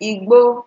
Igbo